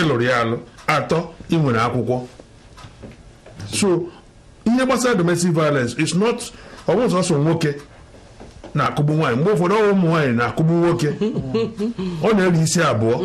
ịlụrụ ya alụ atọ ị nwere akwụkwọ so ihe gbasara domestic violence is not ọ bụghị nwoke na-akụgbu nwaanyị mgbe ụfọdụ ụmụ nwaanyị na-akụgbu nwoke ọ na-eri isi abụọ